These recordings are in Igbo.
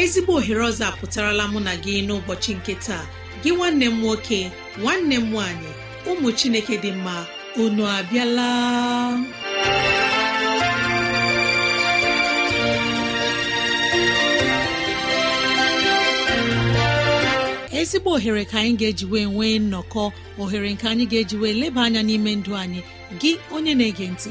ezigbo ohere ọzọ apụtarala mụ na gị n'ụbọchị nke taa gị nwanne m nwoke nwanne m nwaanyị ụmụ chineke dị mma unu abịala ezigbo ohere ka anyị ga-eji wee nwee nnọkọ ohere nke anyị ga-eji wee leba anya n'ime ndụ anyị gị onye na-ege ntị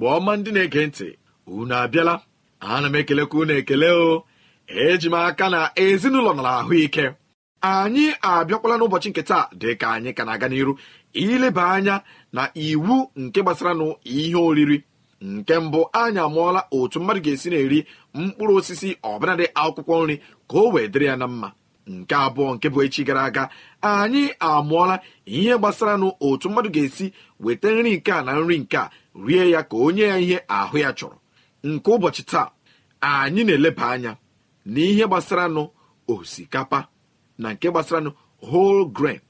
igbo ọma ndị na-ege ntị unu abịala ana m ekelekwa unu ekele o eji m aka na ezinụlọ nara ahụike anyị abịakwala n'ụbọchị nke taa dịka anyị ka na-aga n'iru ileba anya na iwu nke gbasara nụ ihe oriri nke mbụ anyị amụọla otu mmadụ ga-esi na-eri mkpụrụ osisi ọbụladị akwụkwọ nri ka o wee dịrị ya na mma nke abụọ nke bụ echi gara aga anyị amụọla ihe gbasara nụ otu mmadụ ga-esi weta nri nke a na nri nke a rie ya ka onye ya ihe ahụ ya chọrọ nke ụbọchị taa anyị na-eleba anya na ihe gbasara gbasaranụ osikapa na nke gbasaranụ whole grain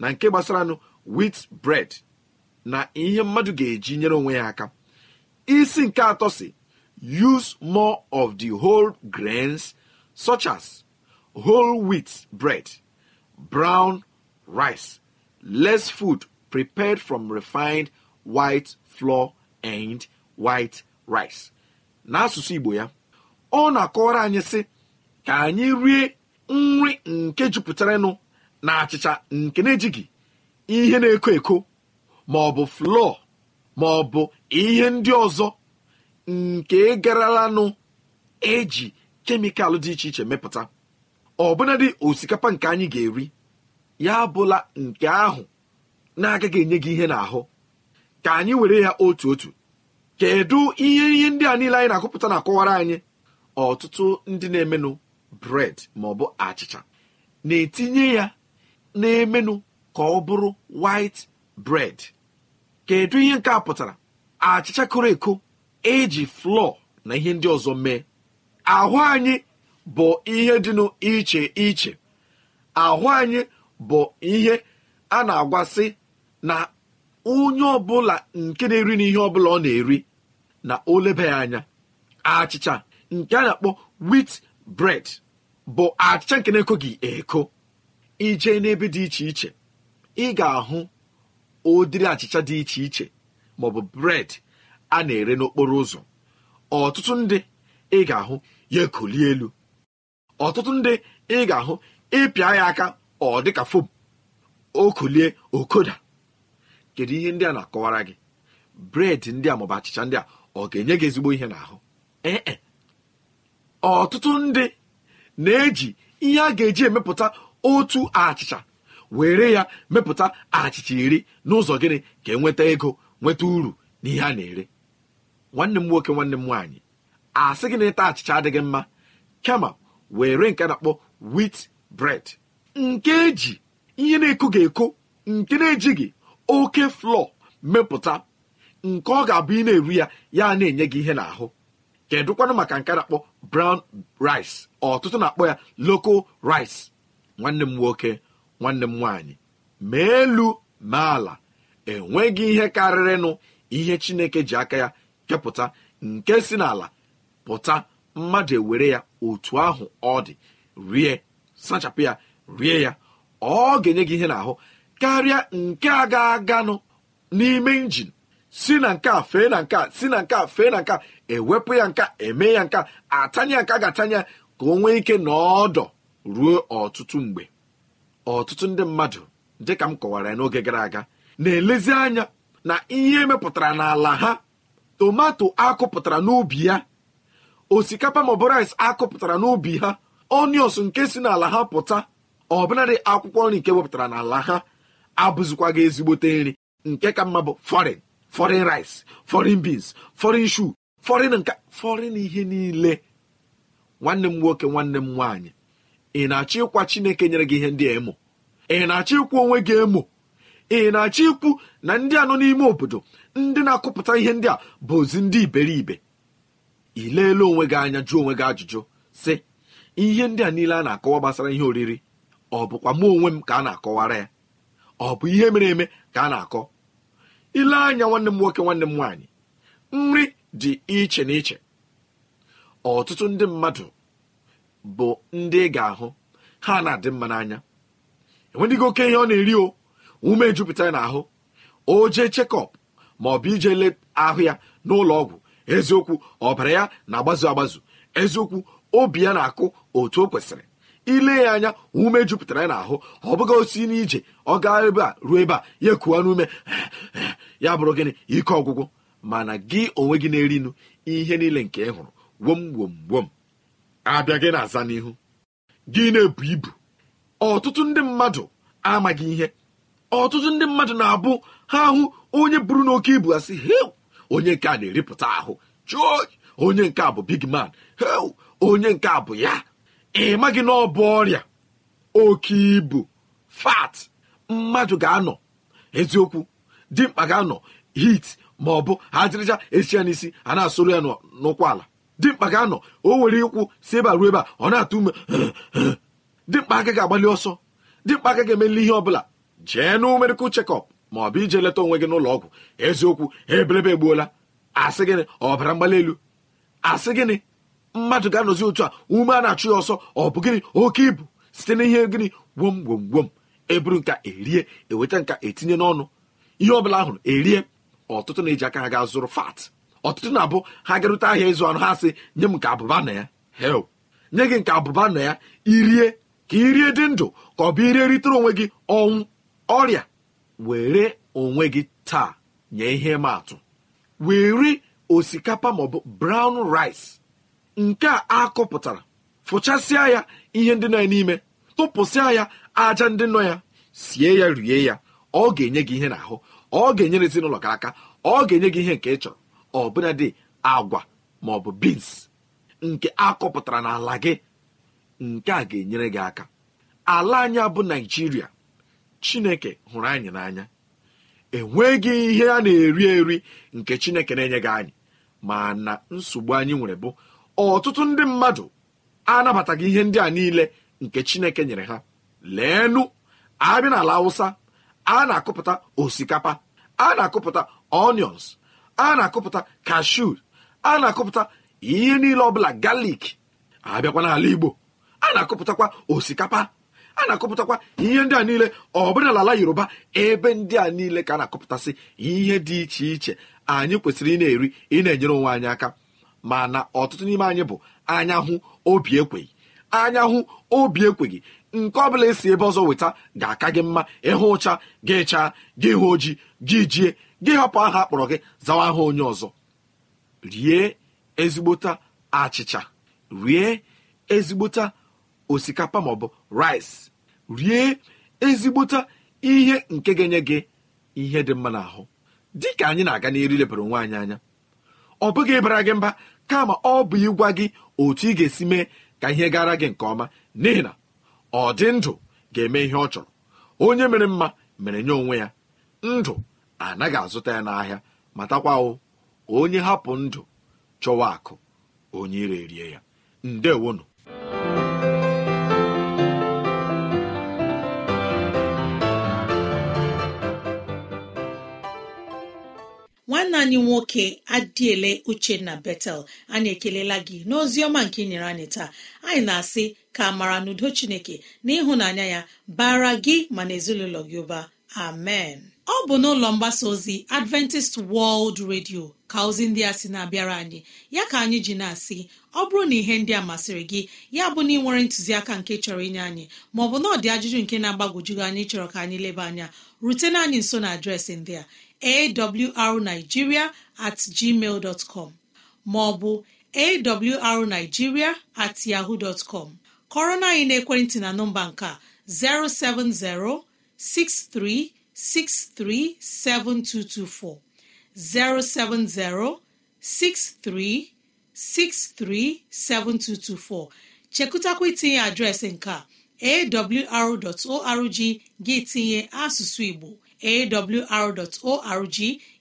na nke gbasara gbasaranụ wheat bread na ihe mmadụ ga-eji nyere onwe ya aka isi nke atọ si use more of the whole grains such as whole wheat bread brown rice less food prepared from refined white flour and white rice n'asụsụ igbo ya ọ na-akọwara anyị sị ka anyị rie nri nke jupụtaranụ na achịcha nke na-ejighị ihe na-eko eko ma ọ bụ flọ ma ọ bụ ihe ndị ọzọ nke gararanụ eji kemikal dị iche iche mepụta ọbụnadị osikapa nke anyị ga-eri ya abụla nke ahụ na-agaghị enye gị ihe n'ahụ ka anyị were ya otu otu kedu ihe ihe ndị a niile anyị na-akụpụta na-akọwara anyị ọtụtụ ndị na-emenụ bred maọbụ achịcha na-etinye ya na-emenụ ka ọ bụrụ white bread kedu ihe nke a pụtara achịcha koro eko eji flọ na ihe ndị ọzọ mee ahụ anyị bụ ihe dịnụ iche iche ahụ anyị bụ ihe a na-agwasị na onye ọbụla nke na-eri n'ihe ọbụla ọ na-eri na olebe ya anya achịcha nke a na-akpọ wit bred bụ achịcha nke na-ekoghị eko ije n'ebe dị iche iche ị ga-ahụ ụdịrị achịcha dị iche iche maọbụ bred a na-ere n'okporo ụzọ ọtụtụ ndị ị ga-ahụ ya ekolie elu ọtụtụ ndị ị ga-ahụ ịpịa ya aka ọ dịka fom okolie okoda kedu ihe ndị a na-akọwara gị bred ndị a maọbụ achịcha ndị a ọ ga-enye gị ezigbo ihe n'ahụ ee eh, eh. ọtụtụ ndị na-eji ihe a ga-eji emepụta otu achịcha were ya mepụta achịcha iri n'ụzọ gịnị ka enweta ego nweta uru na ihe a na-ere nwanne m nwoke nwanne m nwaanyị asị gị na ịta achịcha adịghị mma kama were nke na-akpọ wit bred nke eji ihe na-eko ga-eko nke na-ejighị oke flọ mepụta nke ọ ga-abụ ị na-eru ya ya na-enye gị ihe n'ahụ kedụkwanụ maka nke na-akpọ brown rice ọtụtụ na-akpọ ya local rice nwanne m nwoke nwanne m nwaanyị ma elu ma ala enweghị ihe karịrịnụ ihe chineke ji aka ya kepụta nke si n'ala pụta mmadụ ewere ya otu ahụ ọ dị rie sachapụ ya rie ya ọ ga-enye gị ihe n'ahụ karịa nke a ga-aganụ n'ime injin si na nke a fee na nke a si na nke a fee na nke a ewepụ ya nke a eme ya nke a nka nke a ga atanya ka o nwee ike na ruo ọtụtụ mgbe ọtụtụ ndị mmadụ dịka m kọwara ya n'oge gara aga na-elezi anya na ihe emepụtara n'ala ha tomato akụpụtara n'ubi ya osikapa maọbụ akụpụtara n'ubi ha onios nke si n'ala ha pụta ọbụnadị akwụkwọ nri nke wepụtara n'ala ha abụzikwa gị ezigbote nri nke ka mma bụ fọrịn fọrịn rice foreign beans fọrịn shu fọrịn nka foreign ihe niile nwanne m nwoke nwanne m nwaanyị ị na-achọ ịkwa Chineke nyere gị ihe ndị a emo ị na-achọ ịkwụ onwe gị emo ị na-achọ ikwu na ndị a nọ n'ime obodo ndị na-akụpụta ihe ndị a bụ ozi ndị iberibe ileela onwe gị anya jụọ onwe gị ajụjụ sị ihe ndị a niile a na-akọwa gbasara ihe oriri ọ bụkwa mụ onwe m ka a na-akọwara ya ọ bụ ihe mere eme ka a na-akọ ile anya nwanne m nwoke nwanne m nwaanyị nri dị iche na iche ọtụtụ ndị mmadụ bụ ndị ị ga-ahụ ha na-adị mma n'anya enwedịghị oke ihe ọ na-eri o ume jupụtara n'ahụ o jee chekọp ma ọ bụ ije le ahụ ya n'ụlọ ọgwụ eziokwu ọbara ya na-agbazu agbazu eziokwu obi ya na-akụ otu o kwesịrị ile ya anya ume jupụtara ya n'ahụ ọ bụghị osi n'ije ọ gaa ebe a ruo ebe a ya ekuwa n'ume ya bụrụ gịnị ike ọgwụgwụ mana gị onwe gị na-eri nụ ihe niile nke ị hụrụ wom wom wom abịa gị na-aza n'ihu gị na-ebu ibu ọtụtụ ndị mmadụ amaghị ihe ọtụtụ ndị mmadụ na-abụ ha ahụ onye buru n'oke ibu asị hew onye nke a na-eripụta ahụ chụọ onye nke a bụ big man hew onye nke a bụ ya ị maghị na ọ bụ ọrịa oke ibu fat mmadụ ga-anọ eziokwu dimkpa ga-anọ hit ma ọ bụ ha jiricha esicha n'isi a na-asụrụ ya n'ụkwụ ala dimkpa ga-anọ o nwere ikwu si ebe a ruo ebe a ọ na-atụ ume dimkpa aka ga-agbalị ọsọ dimkpa aka ga-emeli ihe ọbụla jee na medical chekọp ma ọ bụ ije leta onwe gị n'ụlọ ọgwụ eziokwu ebelebe egbuola asị gịnị ọbara mgbali elu asị gịnị mmadụ ga-anọzi otu a ume a na-achụ ya ọsọ ọ bụ gịnị oke ibu site n'ihe gịnị gwom gwom gwom eburu nka erie eweta nka etinye n'ọnụ ihe ọbụla hụrụ erie ọtụtụ na-eji aka ha ga zụrụ fat ọtụtụ na-abụ ha garute ahịa ịzụ anụ ha sị nye m nke abụba na ya hel nye gị nke abụba na ya irie ka irie dị ndụ ka ọ bụ irie ritere onwe gị ọnwụ ọrịa were onwe gị taa nye ihe ma atụ were osikapa maọbụ brown rice nke a akụpụtara fụchasịa ya ihe ndị na n'ime tụpụsịa ya aja ndị nọ ya sie ya rie ya ọ ga-enye gị ihe n'ahụ ọ ga-enyere ezinụlọ gị aka ọ ga-enye gị ihe nke ị chọrọ ọ bụla dị agwa ma ọ bụ bins nke akọpụtara n'ala gị nke a ga-enyere gị aka ala anyị bụ naijiria chineke hụrụ anyị n'anya enweghị ihe a na-eri eri nke chineke na-enye gị anyị ma na nsogbu anyị nwere bụ ọtụtụ ndị mmadụ anabataghị ihe ndị a niile nke chineke nyere ha leenụ abịa n'ala awụsa a na-akụpụta osikapa a na-akụpụta onions a na-akụpụta kashu a na-akụpụta ihe niile ọbụla galik abịakwa n'ala igbo a na-akụpụtakwa osikapa a na-akụpụtakwa ihe ndị a niile ọbụla n'ala yoruba ebe ndị a niile ka a na-akụpụtasị ihe dị iche iche anyị kwesịrị ị na-eri ị na-enyere onwe anyị aka mana ọtụtụ n'ime anyị bụ anya hụ obi ekweghị anya hụ obi ekweghị nke ọ bụla esi ebe ọzọ weta ga-aka gị mma ịhụ ụcha gị chaa gị hụ ojii gị jie gị hapụ aha akpọrọ gị zawa aha onye ọzọ rie ezigbota achịcha rie ezigbota osikapa maọbụ rice rie ezigbota ihe nke ga-enye gị ihe dị mma n'ahụ dị ka anyị na-aga n'eri lebara onwe anyị anya ọ bụghị ịbara gị mba kama ọ bụ ịgwa gị otu ị ga-esi mee ka ihe gara gị nke ọma n'ihi na ọ dị ndụ ga-eme ihe ọ chọrọ onye mere mma mere nye onwe ya ndụ anaghị azụta ya n'ahịa matakwa onye hapụ ndụ chọwa akụ onye ire rie ya ndewonu nwanne nwoke adịele uchenna betel anyị ekelela gị n'ozi ọma nke ị nyere anyị taa anyị na-asị ka amara n'udo chineke na ịhụnanya ya bara gị ma na ezinụlọ gị ụba amen ọ bụ n'ụlọ mgbasa ozi adventist world radio ka ozi ndị a sị na-abịara anyị ya ka anyị ji na-asị ọ bụrụ na ihe ndị a masịrị gị ya bụ na ị nwere ntụziaka nke chọrọ inye anyị maọbụ na ọdị ajụjụ nke na-agbagwojughị anyị chọrọ ka anyị leba anya rutena anyị nso na adreesị ndị a arnigiria at gmail com maọbụ arnigiria at yaho dtcom kọrọ na anyị naekwentị na nọmba nke 0706363724 070 63 7224 chekụtakwa itinye adreesị nke a arorg gị tinye asụsụ igbo awr.org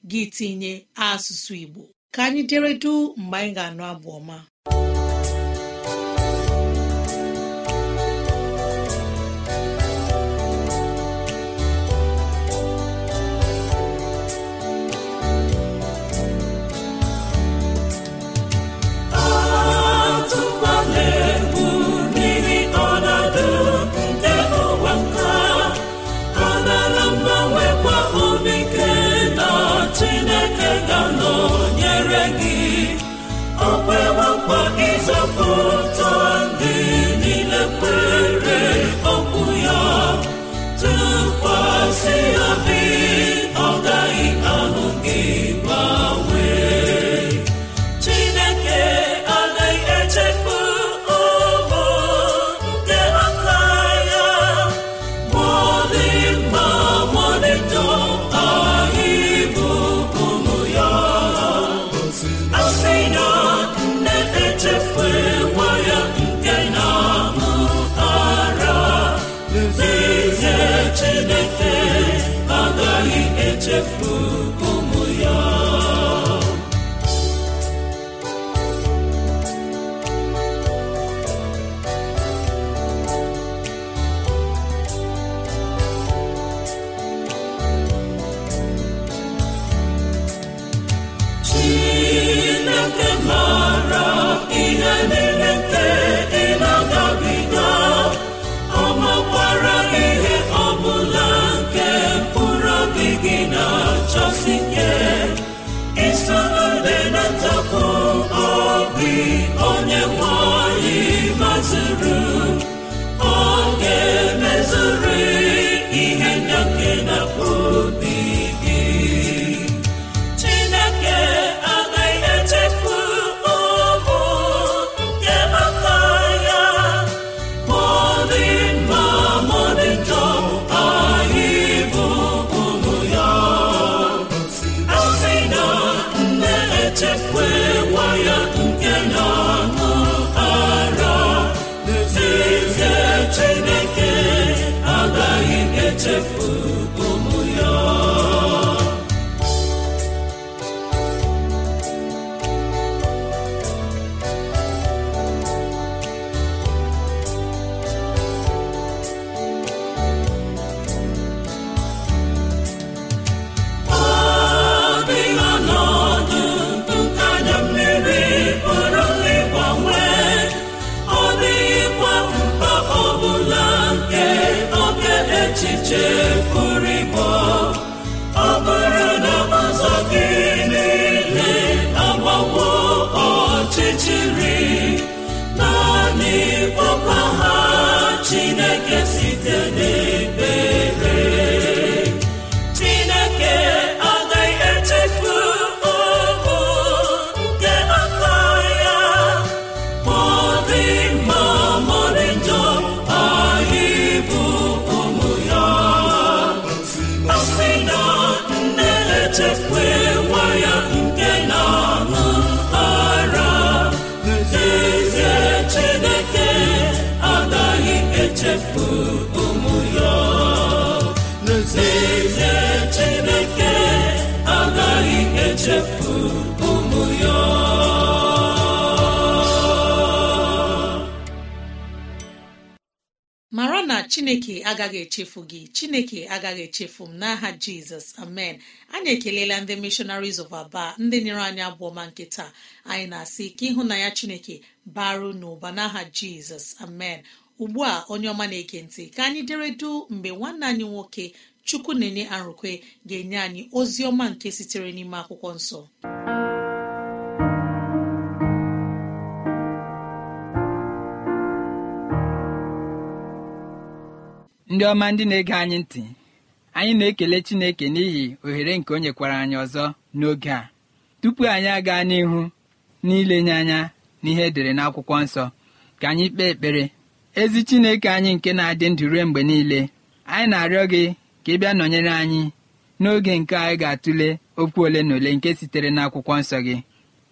gị tinye asụsụ Igbo ka anyị duu mgbe anyị ga-anụ abụ ọma chineke agaghị echefu gị chineke agaghị echefu m n'aha jizọs amen anyị ekelela ndị missionaries of aba ndị nyere anyị abụọ ma nke taa anyị na-asị ka ịhụnanya chineke baru n'ụba n'aha jizọs amen ugbu a onye ọma na-ege ntị ka anyị deredu mgbe nwanne anyị nwoke chukwu na-enye arụkwe ga-enye anyị ozi ọma nke sitere n'ime akwụkwọ nsọ ndị ọma ndị na-ege anyị ntị anyị na-ekele Chineke n'ihi ohere nke o nyekwara anyị ọzọ n'oge a tupu anyị aga n'ihu n'ilenye anya n'ihe edere n'akwụkwọ nsọ ka anyị kpee ekpere ezi Chineke anyị nke na-adị ndụ ruo mgbe niile anyị na-arịọ gị ka ị bịa nọnyere anyị n'oge nke anyị ga-atụle okwu ole na ole nke sitere n'akwụkwọ nsọ gị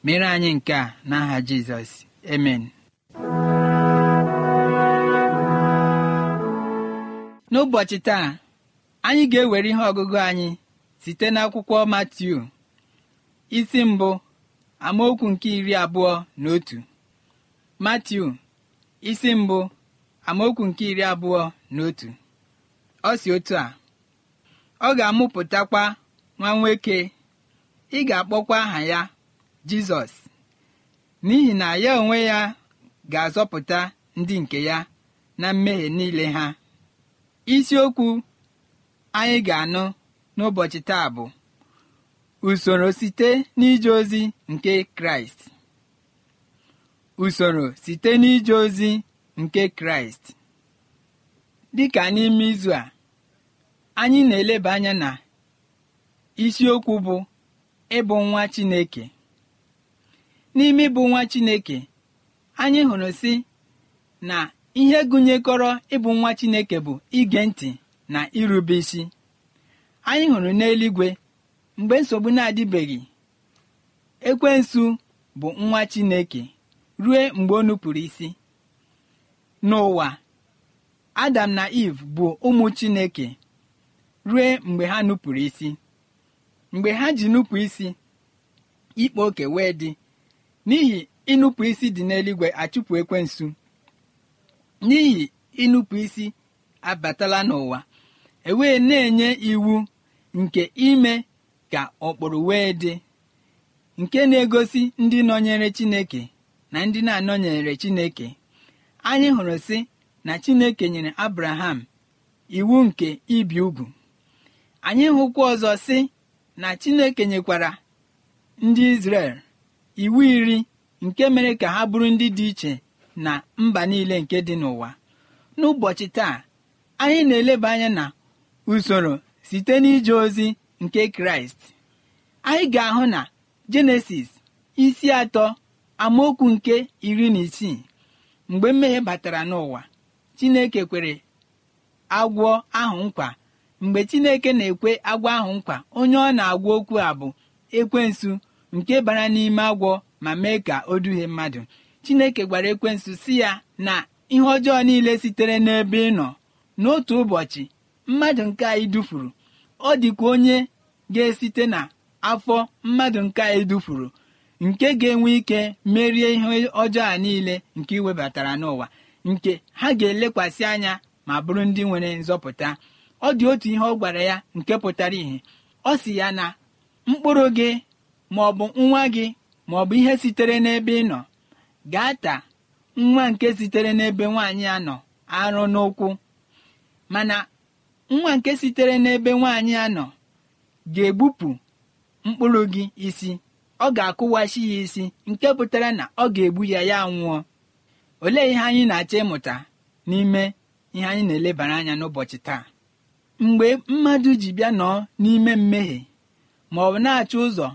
mere anyị nke a n'aha Jizọs amen n'ụbọchị taa anyị ga-ewere ihe ọgụgụ anyị site n'akwụkwọ Matiu isi mbụ amaokwu nke iri abụọ na otu Matiu isi mbụ amaokwu nke iri abụọ na otu ọ si otu a ọ ga-amụpụtakwa nwa nwoke ị ga-akpọkwa aha ya Jizọs n'ihi na ya onwe ya ga-azọpụta ndị nke ya na mmehie niile ha isiokwu anyị ga-anụ n'ụbọchị taa bụ usoro site n'ije ozi nke kraịst usoro site n'ije ozi nke kraịst dịka n'ime izu a anyị na-eleba anya na isiokwu bụ ịbụ nwa chineke n'ime ịbụ nwa chineke anyị hụrụ si na ihe gụnyekọrọ ịbụ nwa chineke bụ ige ntị na irube isi anyị hụrụ n'eluigwe mgbe nsogbu na-adịbeghị ekwensu bụ nwa chineke ruo mgbe o nupụrụ isi n'ụwa adam na eve bụ ụmụ chineke rue mgbe ha nupụrụ isi mgbe ha ji nupụ isi ikpe oke wee dị n'ihi ịnụpụ isi dị n'eluigwe achụpụ ekwensu n'ihi ịnụpụ isi abatala n'ụwa ewee na-enye iwu nke ime ka ọkpụrụ wee dị nke na-egosi ndị nọnyere chineke na ndị na-anọnyere chineke anyị hụrụ sị na chineke nyere abraham iwu nke ibi ugwu anyị hụkwa ọzọ sị na chineke nyekwara ndị izrel iwu iri nke mere ka ha bụrụ ndị dị iche na mba niile nke dị n'ụwa n'ụbọchị taa anyị na-eleba anya na usoro site n'ije ozi nke kraịst anyị ga-ahụ na jenesis isi atọ amaokwu nke iri na isii mgbe mmehie batara n'ụwa chineke kwere agwọ ahụ nkwa mgbe chineke na-ekwe agwọ ahụ nkwa onye ọ na-agwa okwu a bụ ekwensu nke bara n'ime agwọ ma mee ka o duhie mmadụ chineke gwara ekwensu si ya na ihe ọjọọ niile sitere n'ebe ị nọ n'otu ụbọchị mmadụ nke anyị dufuru ọ dịkwa onye ga-esite na afọ mmadụ nke anyị dufuru nke ga-enwe ike merie ihe ọjọọ a niile nke iwebatara n'ụwa nke ha ga-elekwasị anya ma bụrụ ndị nwere nzọpụta ọ dị otu ihe ọ gwara ya nke pụtara ìhè ọ si ya na mkpụrụ gị ma ọ nwa gị ma bụ ihe sitere n'ebe ị nọ gata nwa nke sitere n'ebe nwaanyị a nọ arụ n'ụkwụ mana nwa nke sitere n'ebe nwaanyị a nọ ga-egbupụ mkpụrụ gị isi ọ ga-akụwachi ya isi nke pụtara na ọ ga-egbu ya ya nwụọ olee ihe anyị na-achọ ịmụta n'ime ihe anyị na-elebara anya n'ụbọchị taa mgbe mmadụ ji bịa nọ n'ime mmehie ma ọ na-achọ ụzọ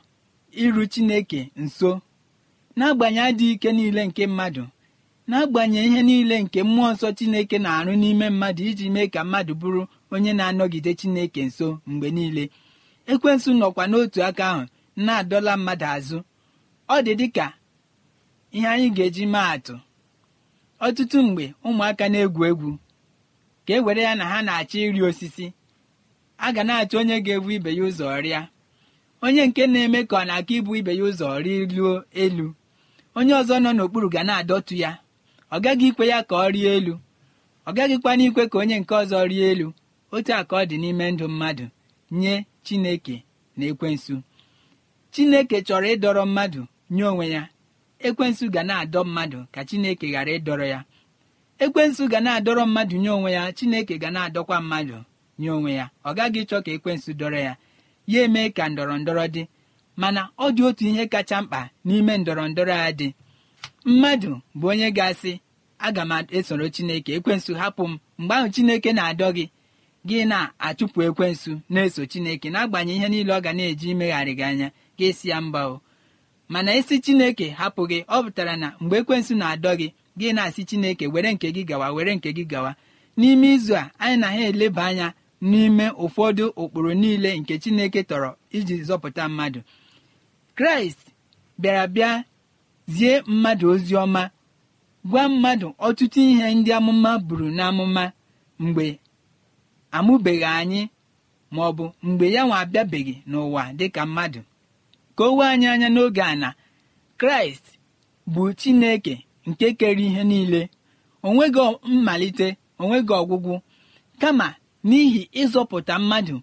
iru Chineke nso n'agbanyeghị adịghị ike niile nke mmadụ n'agbanyeghị ihe niile nke mmụọ nsọ chineke na-arụ n'ime mmadụ iji mee ka mmadụ bụrụ onye na-anọgide chineke nso mgbe niile ekwensu nọkwa n'otu aka ahụ na-adọla mmadụ azụ ọ dị dị ka ihe anyị ga-eji maa atụ ọtụtụ mgbe ụmụaka na-egwu egwu ka e were ya na ha na-achọ ịrị osisi a ga na-achọ onye ga-ebu ibe ya ụzọ rịa onye nke na-eme ka ọ na-aka ibu ibe ya ụzọ rịluo elu onye ọzọ nọ n'okpuru ga na-adọtụ ya ọ gaghị ikwe ya ka ọ rie elu ọ gaghịkwana ikwe ka onye nke ọzọ rie elu otu a ka ọ dị n'ime ndụ mmadụ nye chineke na ekwensu chineke chọrọ ịdọrọ mmadụ nye onwe ya ekwensu ga na-adọ mmadụ ka chineke ghara ịdọrọ ya ekwensu ga na-adọrọ mmadụ nye onwe ya chineke ga na-adọkwa mmadụ nye onwe ya ọ gaghị ịchọ ka ekwensu dọrọ ya ya eme ka ndọrọ ndọrọ dị mana ọ dị otu ihe kacha mkpa n'ime ndọrọ ndọrọ a dị mmadụ bụ onye ga-asị aga m esoro chineke ekwensu hapụ m mgbe ahụ chineke na-adọ gị gị na-achụpụ ekwensu na-eso chineke n'agbanyeghị ihe niile ọ ga na-eji imegharị gị anya gị e si ya mba o mana esi chineke hapụ gị ọ pụtara na mgbe ekwensu na-adọ gị gị na-asị chineke were nke gị gawa were nke gị gawa n'ime izu a anyị na ha eleba anya n'ime ụfọdụ ụkpụrụ niile nke chineke tọrọ iji zọpụta mmadụ kraịst bịara bịa zie mmadụ ozi ọma gwa mmadụ ọtụtụ ihe ndị amụma buru n'amụma mgbe amụbeghị anyị ma ọ bụ mgbe ya nwa abịabeghị n'ụwa dịka mmadụ ka o wee anyị anya n'oge a na kraịst bụ chineke nke kere ihe niile onweghị mmalite onweghị ọgwụgwụ kama n'ihi ịzọpụta mmadụ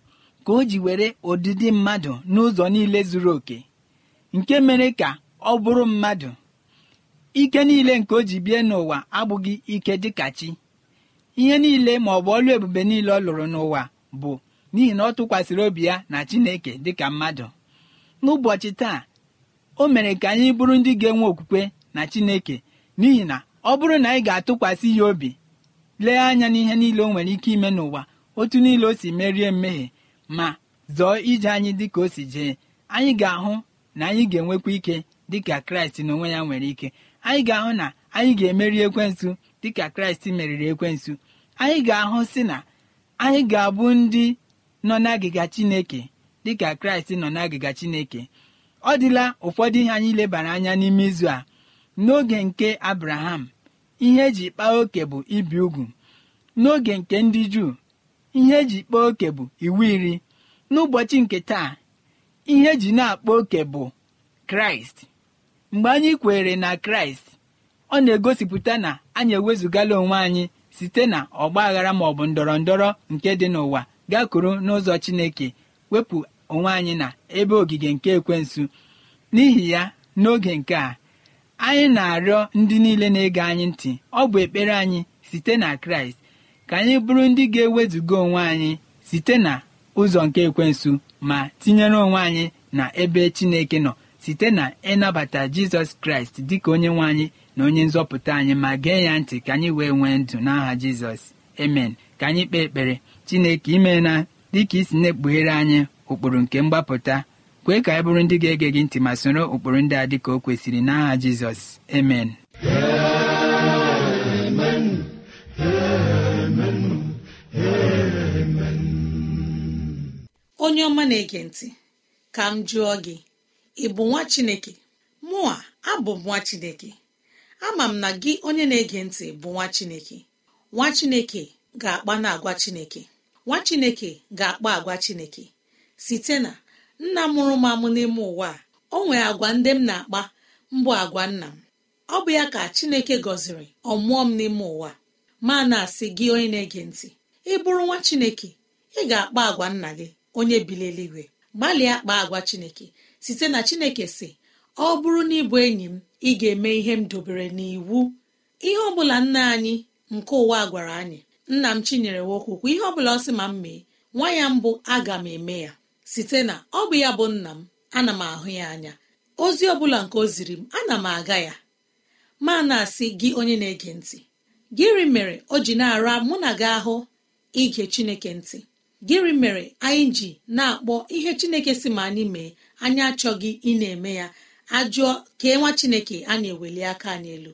ka o ji were ụdịdị mmadụ n'ụzọ niile zuru oke nke mere ka ọ bụrụ mmadụ ike niile nke o ji bie n'ụwa abụghị ike dịka chi ihe niile ma ọ bụ ọlụ ebube niile ọ lụrụ n'ụwa bụ n'ihi na ọ tụkwasịrị obi ya na Chineke dịka mmadụ n'ụbọchị taa o mere ka anyị bụrụ ndị ga-enwe okwukwe na Chineke n'ihi na ọ bụrụ na anyị ga-atụkwasị ya obi lee anya n'ihe niile o nwere ike ime n'ụwa otu niile o si merie mmehie ma zọọ ije anyị dịka o si jee anyị ga-ahụ na anyị ga-enwekwa ike dịka kraịst n'onwe ya nwere ike anyị ga-ahụ na anyị ga-emeri dị dịka kraịst meriri ekwensu anyị ga-ahụ si na anyị ga-abụ ndị nọ n'agịga chineke dịka kraịst nọ n'agịga chineke ọ dịla ụfọdụ ihe anyị lebara anya n'ime izu a n'oge nke abraham ihe eji kpaa oke bụ ibi ugwu n'oge nke ndị juu ihe eji kpaa oke bụ iwu iri n'ụbọchị nke taa ihe eji na-akpa oke bụ kraịst mgbe anyị kwere na kraịst ọ na-egosipụta na anyị ewezụgala onwe anyị site na ọgba aghara maọbụ ndọrọ ndọrọ nke dị n'ụwa gakwuru n'ụzọ chineke wepụ onwe anyị na ebe ogige nke ekwensu n'ihi ya n'oge nke a anyị na-arịọ ndị niile na-ege anyị ntị ọ bụ ekpere anyị site na kraịst ka anyị bụrụ ndị ga-ewezuga onwe anyị site na ụzọ nke ekwensu ma tinyere onwe anyị na ebe chineke nọ site na ịnabata jizọs kraịst dịka onye nwe anyị na onye nzọpụta anyị ma gee ya ntị ka anyị wee nwee ndụ n'aha jizọs emen ka anyị kpee ekpere chineke ime na dịka isi na-ekpughere anyị ụkpụrụ nke mgbapụta kwee ka anyị bụrụ ndị ga-ege gị ntị ma soro ụkpụrụ ndị a dịka o kwesịrị n'aha jizọs emen onye ọma na-ege ntị ka m jụọ gị ị bụ nwa chineke mụa abụ m nwa chineke ama m na gị onye na-ege ntị bụ nwa chineke nwa chineke ga-akpa na agwa chineke nwa chineke ga-akpa agwa chineke site na nna mụrụ m amụ n'ime ụwa a o nwere agwa ndị m na-akpa mbụ agwa nna m ọ bụ ya ka chineke gọziri ọmụọ m n'ime ụwa ma na-asị gị onye na-ege ntị ị bụrụ nwa chineke ị ga-akpa agwa nna gị onye bili eluigwe gbalịa kpaa agwa chineke site na chineke si ọ bụrụ na ịbụ enyi m ị ga-eme ihe m dobere n'iwu ihe ọbụla nna anyị nke ụwa gwara anyị nna m chinyere nwokwukwu ihe ọbụla ọ sị ma m mee nwa ya mbụ aga m eme ya site na ọ bụ ya bụ nna m ana m ahụ ya anya ozi ọbụla nke o ziri m ana m aga ya ma na-asị gị onye na-ege ntị gịrị mere o ji na-ara mụ na gị ahụ ige chineke ntị gịnị mere anyị ji na-akpọ ihe chineke si ma anyị mee anyị achọghị ị na-eme ya ajụọ kee nwa chineke a na-eweli aka anyị elu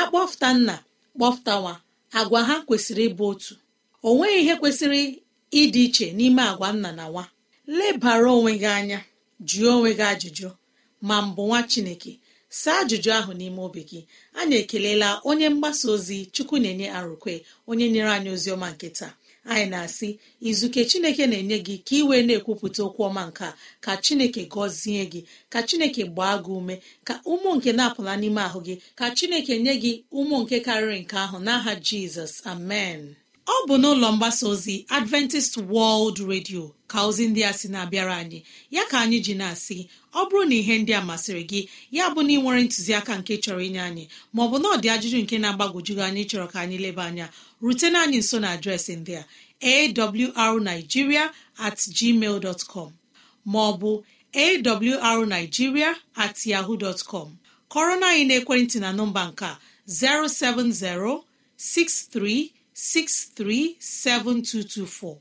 akpọfụta nna kpọfụta nwa agwa ha kwesịrị ịbụ otu o nweghị ihe kwesịrị ịdị iche n'ime agwa nna na nwa lebara onwe gị anya jụọ onwe gị ajụjụ ma mbụ nwa chineke saa ajụjụ ahụ n'ime obi gị a na-ekelela onye mgbasa ozi chukwu na-enye arụkwe onye nyere anyị ozi ọma nke taa anyị na-asị izuke chineke na-enye gị ka ị wee na-ekwupụta okwu ọma nke ka chineke gọzie gị ka chineke gbaa gị ume ka ụmụ nke na-apụla n'ime ahụ gị ka chineke nye gị ụmụ nke karịrị nke ahụ n'aha jizọs amen ọ bụ n'ụlọ mgbasa ozi adventist world radio ka ozi ndị a sị na-abịara anyị ya ka anyị ji na-asị ọ bụrụ na ihe ndị a masịrị gị ya bụ na ị nwere ntụziaka nke chọrọ inye anyị maọbụ na ọdị ajụjụ nke na-agbagwoju anyị chọrọ ka anyị leba anya rutena anyị nso na adreesị ndị a arigiria at gmail com maọbụ arigiria at yaho dtcom kọrọna anyị naekwentị na nọmba nke 070 0706363724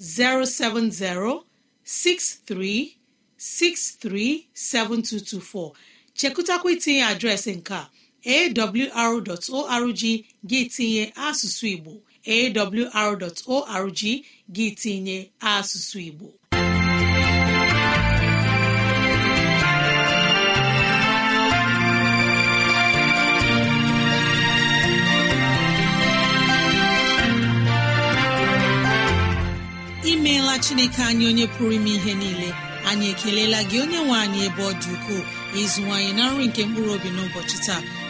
070 63637224 7224 chekụtakwa itinye adreesị nke a awr.org gị tinye asụsụ igbo awr.org gị tinye asụsụ igbo imeela chineke anyị onye pụrụ ime ihe niile anyị ekelela gị onye nwe anyị ebe ọ dị ukwuu ịzụwanyị na nri nke mkpụrụ obi n'ụbọchị taa